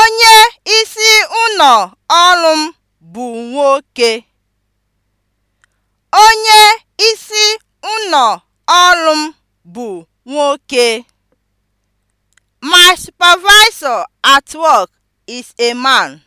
Onye isi ụnọ ọrụ m bụ nwoke. ọrụ m bụ nwoke. My supervisor at work is a man.